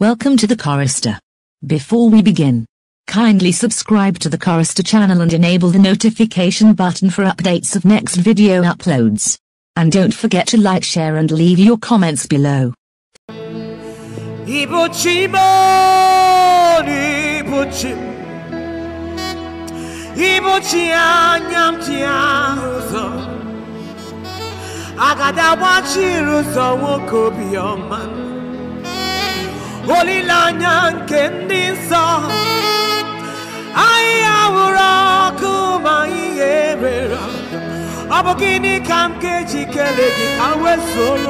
Welcome to the Chorister. Before we begin, kindly subscribe to the Chorister channel and enable the notification button for updates of next video uploads. And don't forget to like, share and leave your comments below. 올리라냥 캔디사 아이아우라 그마이 예베라 아버기니 감게 지켜내기 가we 솔로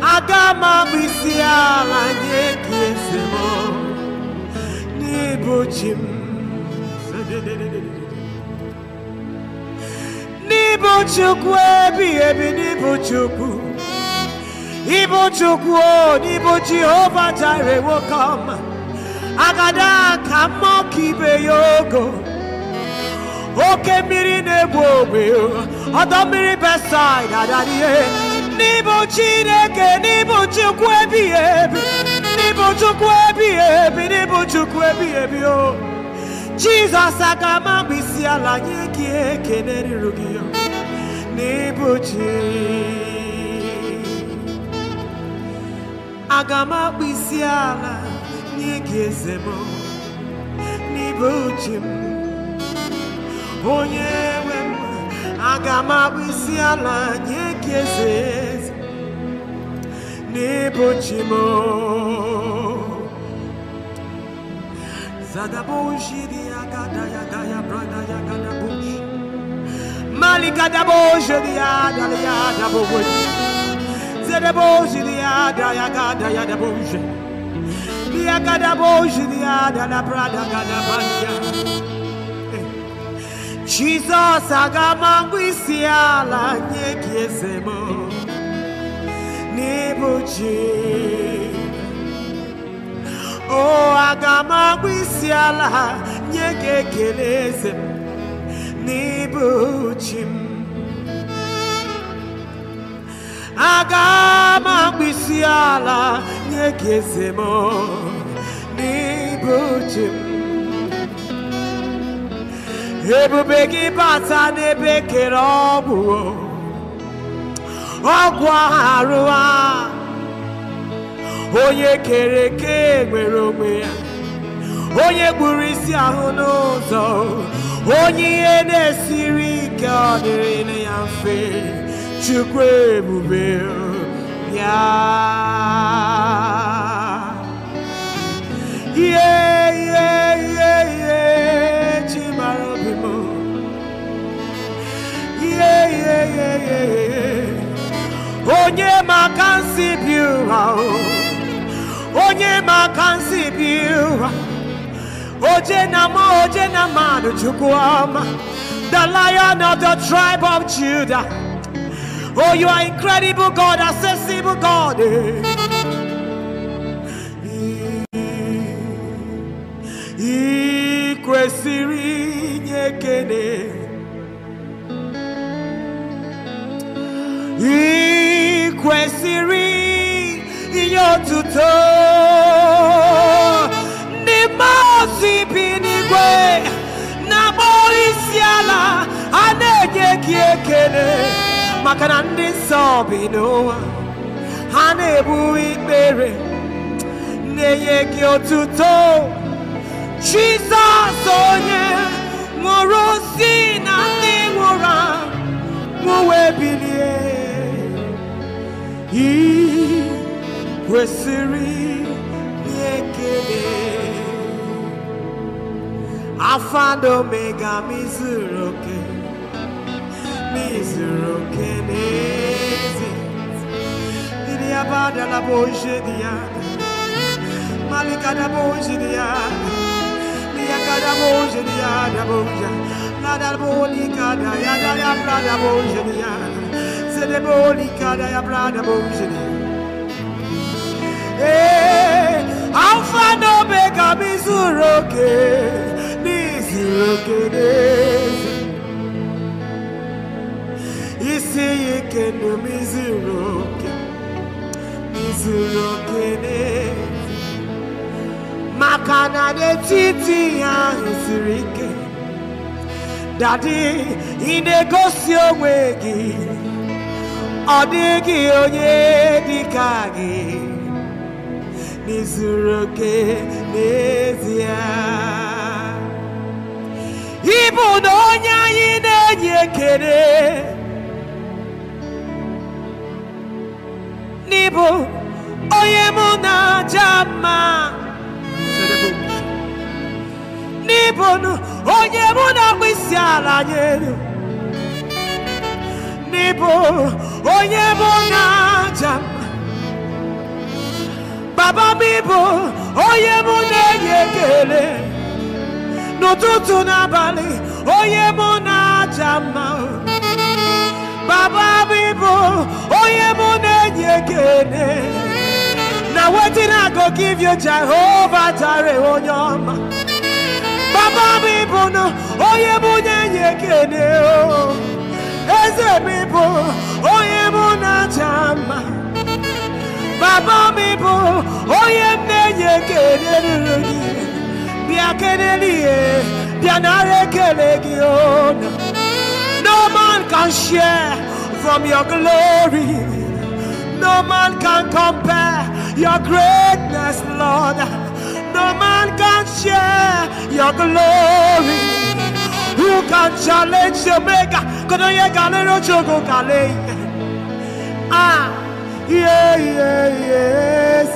아가마 미시아 아니에 기에세모 니보침 Nibo chukwe bi ebi nibo chukwu Ibochukwu, Ibo Jehovah Jireh will come. Agada kamo kibe yogo. Oke miri nebo obe, miri mmiri beside adarie. N'ibo Chineke, n'ibo Chukwu ebi ebi, n'ibo Chukwu ebi ebi, n'ibo Chukwu ebi ebi o. Jizọs aga ma mkpịsị ala nye gị Chineke. aga m akpụ isi ala nye gị eze m n'ibe m onye nwe m aga m akpụ isi ala nye agada ya brada ya gada boji Malika da bojiri ya dali ya da diada I got my da bonje dia gada bonje diada la prada gada banya Jesus agamangwisia la nyekiesemo nibuji o agamangwisia la nyekekeleze nibuji agam si ala nye gị eze m n'ịbụ chi m ebube gị bata n'ebe kere ọgwụ ọgwụ arụ onye kere eke nwere onwe ya onye gburu isi ahụ n'ụzọ onye ihe na-esiri ike ọ dịrị ya mfe chukwu ebube Yeah. Yeah, yeah, yeah, yeah. Chimaro bimo. Yeah, yeah, yeah, yeah, yeah. Onye makansi biwa. Onye makansi biwa. Oje nama, oje nama, no chukwama. The lion of the tribe of Judah. Oh, you are incredible God, accessible God. I kwesịrị inye ekele. I kwesịrị inye otuto. Ndị mmụọ ozi na-akpọrọ isi Makana na ndị nsọ bi n'ụwa ha na-ebu ikpere na-enye gị otuto Jizọs onye nwụrụ si na ndị nwụrụ anwụ wee bilie ị kwesịrị nye ekele Alpha and Omega, Mizuru, okay. Misero kenezi Didi la boje Malika da boje dia Miaka da boje dia da La da bolika da ya da ya bra da boje dia da ya bra da boje Eh Alfa no mega misero titi ya siri daddy dadi ị na-egosi onwe gị ọ dịghị onye dị ịbụ donya onye yekere, na na-enye ekele n'ịbụ onye mụ na n'ịbụnụ onye mụ na-akpụ isi ala nyelu n'ịbụ onye mụ na-aja baba m ịbụ onye mụ na-enye ekele n'ụtụtụ n'abalị onye mụ na-aja mma baba m ịbụ onye mụ na-enye ekele na wetin i go give you Jehovah Jireh onye ọma eze baba bịa bịa no man can share from your glory no man can compare your greatness lord no man can share your glory. Who can challenge your maker? Kono ye kale no chogo kale. Ah, yeah, yeah, yes.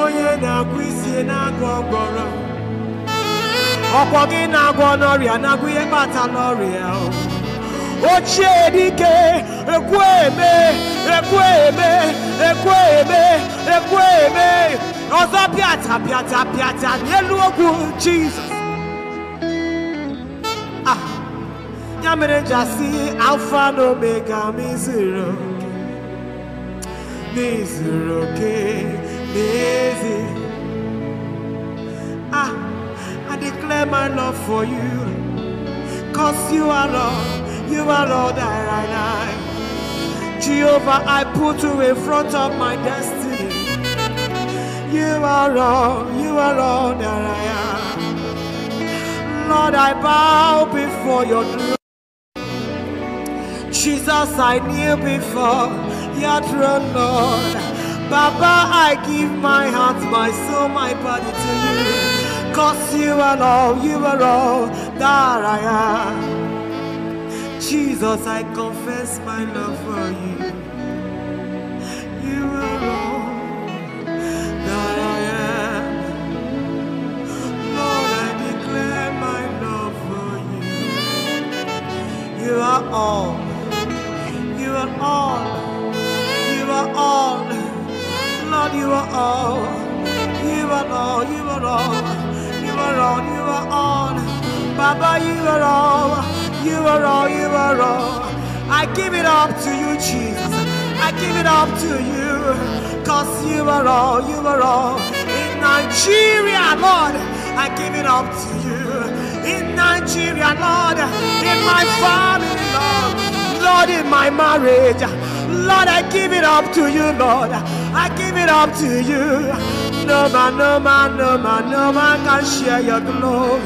Onye na-agwụ isi na-agwọ ọgwọrọ. Ọkwọ gị na-agwọ n'ọrịa na-agwụ ihe kpata n'ọrịa. Ochie dike ekwe eme ekwe eme ekwe eme ekwe eme. Ọzọ I pịata in n'elu ogwu Jizọs. Ah, ya mere nja si Alfa na Omega m Zero, oke. Zero, oke n'ezi. Ah, I declare my love for you. Cause you are Lord, you are Lord that I like. Jehovah, I put you in front of my destiny. You are all, you are all that I am. Lord, I bow before your throne. Jesus, I kneel before your throne, Lord. Baba, I give my heart, my soul, my body to you. Cause you are all, you are all that I am. Jesus, I confess my love for you. Lord, I give it up to you. In Nigeria, Lord, in my family, Lord, Lord, in my marriage, Lord, I give it up to you, Lord. I give it up to you. No man, no man, no man, no man can share your glory.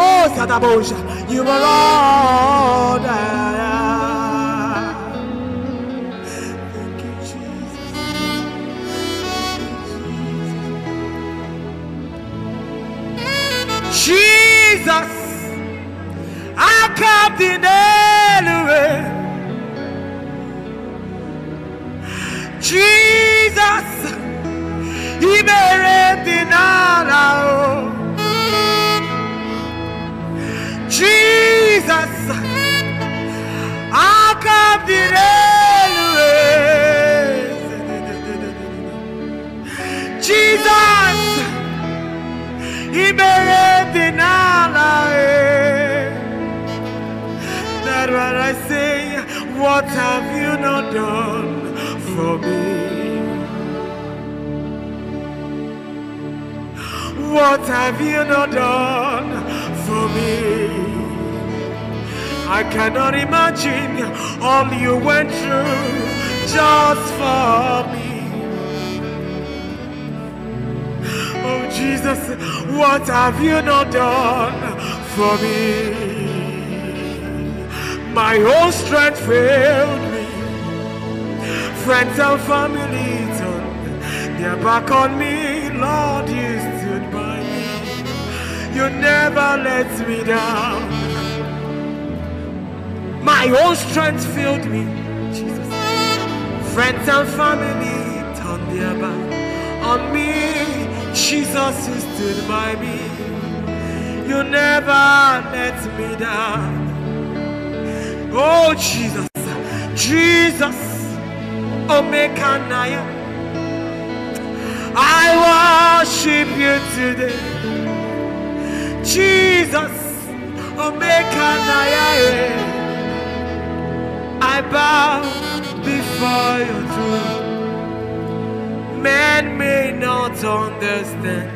Oh, Sadabosha, you are all Jesus, I come the Nelue. Jesus, Ibere Dinara. Jesus, I come the Nelue. Jesus, Ibere that when I say, What have you not done for me? What have you not done for me? I cannot imagine all you went through just for me. Oh Jesus, what have you not done for me? My own strength failed me. Friends and family turned their back on me. Lord, you stood by me. You never let me down. My own strength failed me. Jesus. Friends and family turned their back on me. Jesus, you stood by me. You never let me down. Oh, Jesus. Jesus. Omekanaya. I worship you today. Jesus. Omekanaya. I bow before your throne. Man may not understand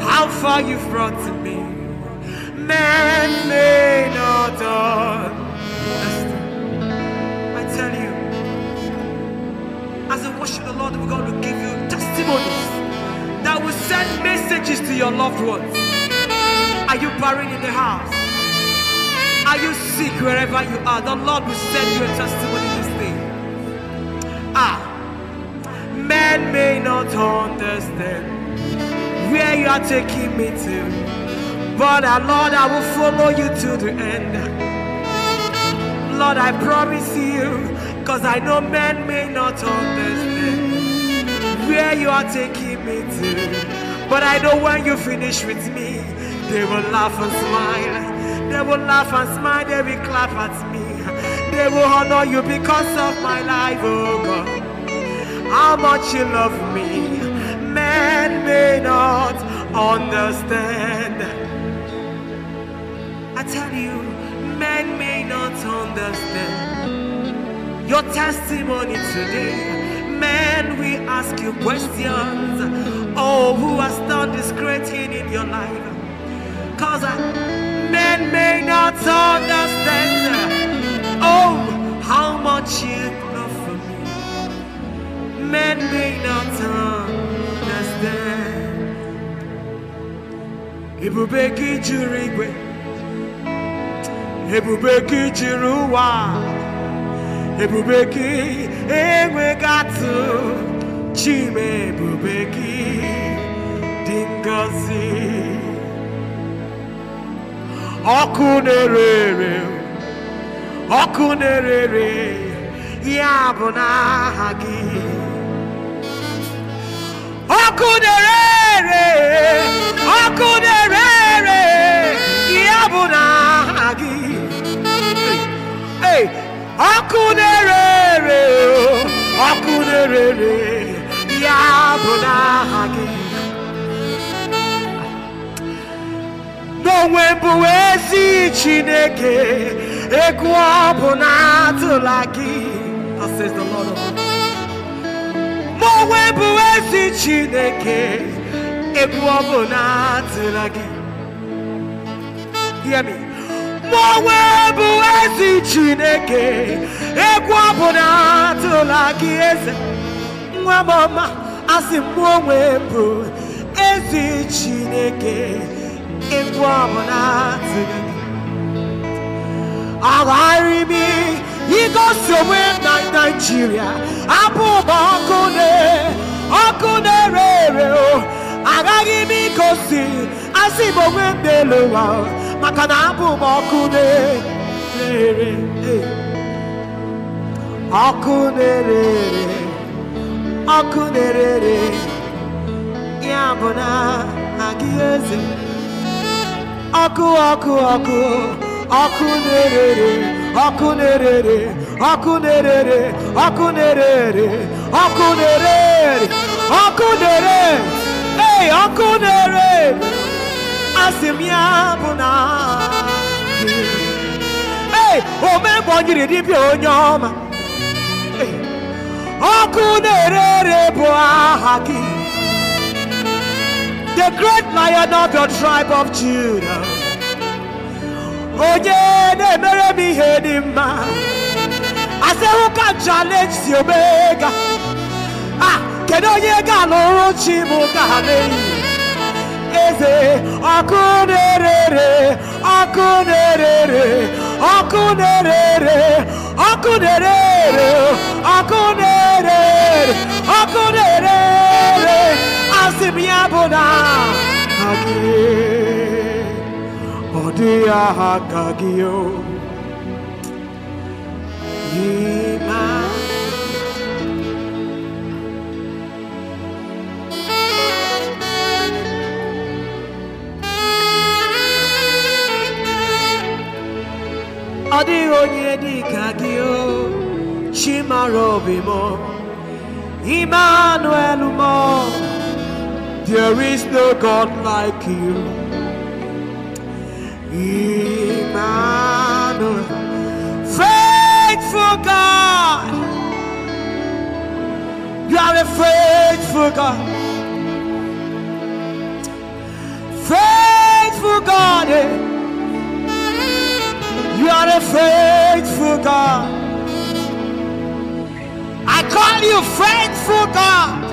how far you've brought me. Man may not understand I tell you, as I worship the Lord, we're going to give you testimonies that will send messages to your loved ones. Are you buried in the house? Are you sick wherever you are? The Lord will send you a testimony this day. Ah, men may not understand where you are taking me to. But our ah, Lord, I will follow you to the end. Lord, I promise you, because I know men may not understand where you are taking me to. But I know when you finish with me, they will laugh and smile. They will laugh and smile, they will clap at me. They will honor you because of my life, oh God. How much you love me, men may not understand. I tell you, men may not understand your testimony today. Men, we ask you questions. Oh, who has done this great thing in your life? Cause I, uh, men may not understand. Oh, how much you love for me. Men may not understand. to regret ebube gị jiri ụwa ebube gị chime ebube gị dị ngọzi ọkụ na-ere ere oku na-ere ya bụ n'aha gị ọkụ na-ere ere oku na-ere ya bụ n'aha hey akunere, na-ere ere ọkụ na-ere ere ya bụ n'aha gị n'onwe bụ ezi chineke egwu ọ bụ na atụla gị n'onwe chineke egwu ọ hear me mgbanwe bụ ezi chineke egwu ọbụla atụla gị eze nwa m ọma asị m onwe bụ ezi chineke egwu ọbụla atụla gị agharị m igosi onwe na naijiria abụ ụba ọkụ na ọkụ na-ere ere agaghị m igosi asị m onwe m n'elu ụwa maka na abụ m ọkụ na-ere ọkụ na-ere ere ọkụ na-ere ere ya bụ na agị eze ọkụ ọkụ ọkụ ọkụ na-ere ere ọkụ na-ere ere ọkụ na-ere ere ọkụ na-ere ere ọkụ na-ere ere ọkụ na-ere ọkụ na-ere na-asịmya bụ na ee omebonyiri dibịa onye ọma ọkụ na-ere ere bụ aha gị the great lion of your tribe of Judah onye na-emere m ihe dị mma asehụka challenge si omega a ah, kedu onye ga-alụrụ chi bụ ka ha Egeze, Akunerere, Akunerere, Akunerere, Akunerere, Akunerere, Akunerere, Asimiabona, Hagi, Odia Hagagio. Yeah. onye dị o Emmanuel there is no God like you Emmanuel faithful God you are a faithful God a faithful God. I call you faithful God.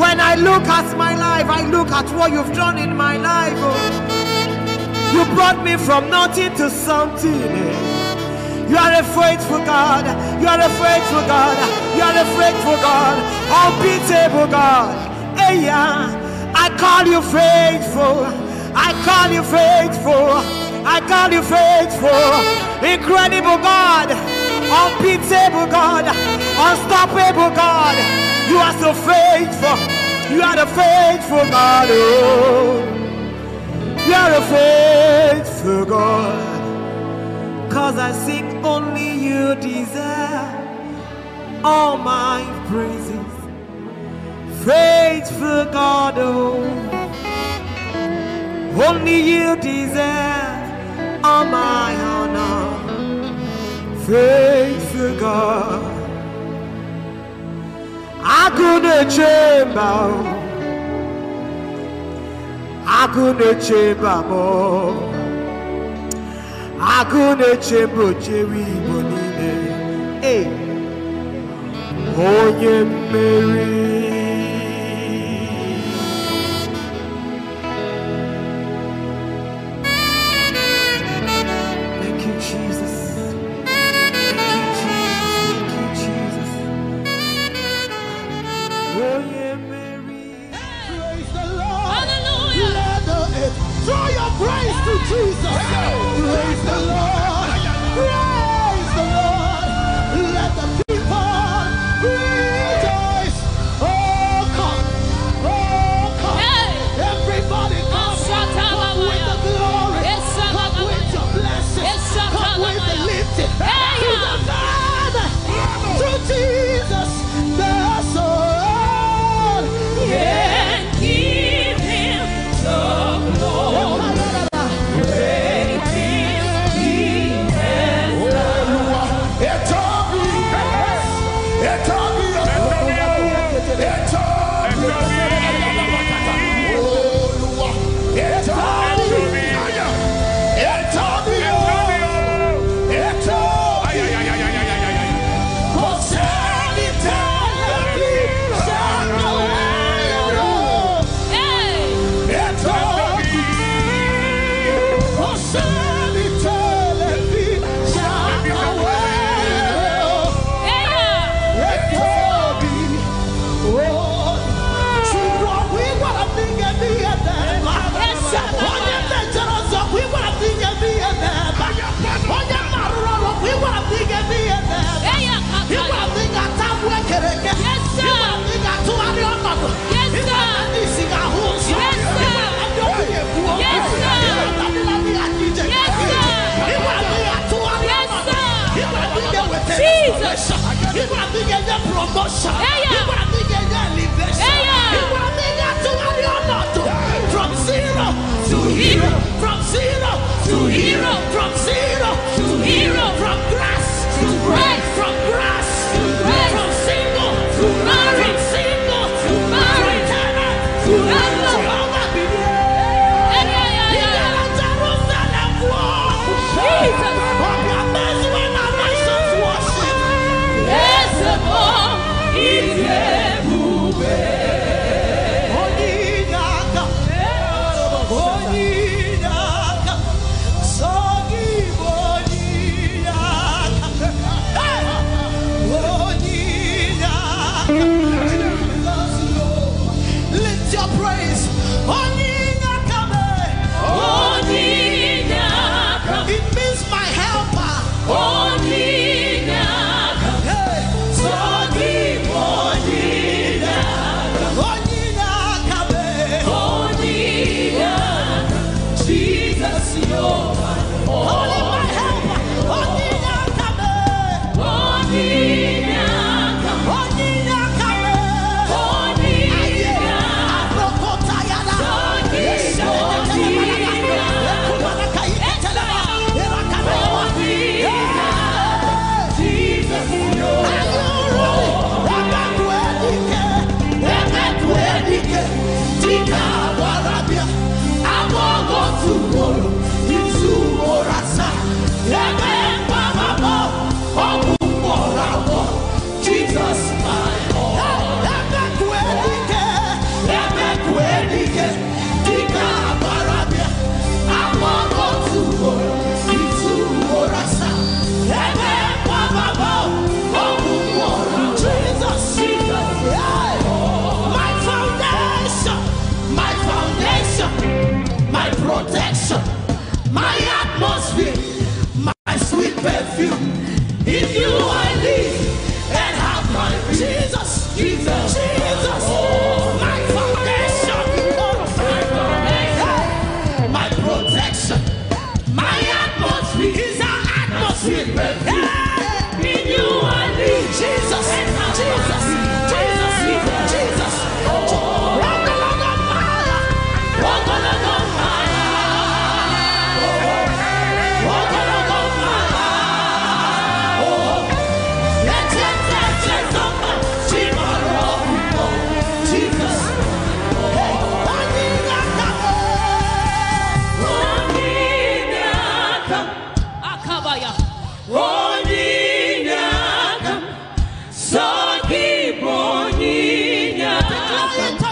When I look at my life, I look at what you've done in my life. Oh. You brought me from nothing to something. Eh. You are a faithful God. You are a faithful God. You are a faithful God. Unbeatable God. Hey, yeah. I call you faithful. I call you faithful. I call you faithful, incredible God, unbeatable God, unstoppable God. You are so faithful. You are the faithful God. Oh, you are the faithful God. Cause I seek only you deserve all my praises. Faithful God, oh, only you deserve. On my honor, faithful God. I couldn't chamber, I couldn't chamber more. I couldn't change chamber, Jerry Bonine. Hey, oh, yeah, Mary. Hallelujah.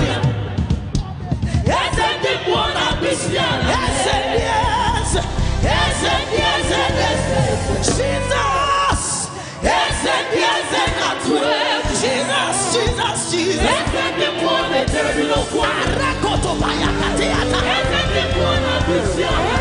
Jesus, bayakateata. Ese